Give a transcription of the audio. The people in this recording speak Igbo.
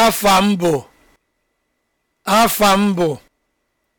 afa m bụ afa bụ